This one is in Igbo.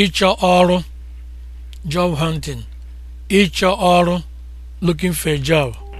ịchọ ọrụ job hunting ịchọ ọrụ looking for a job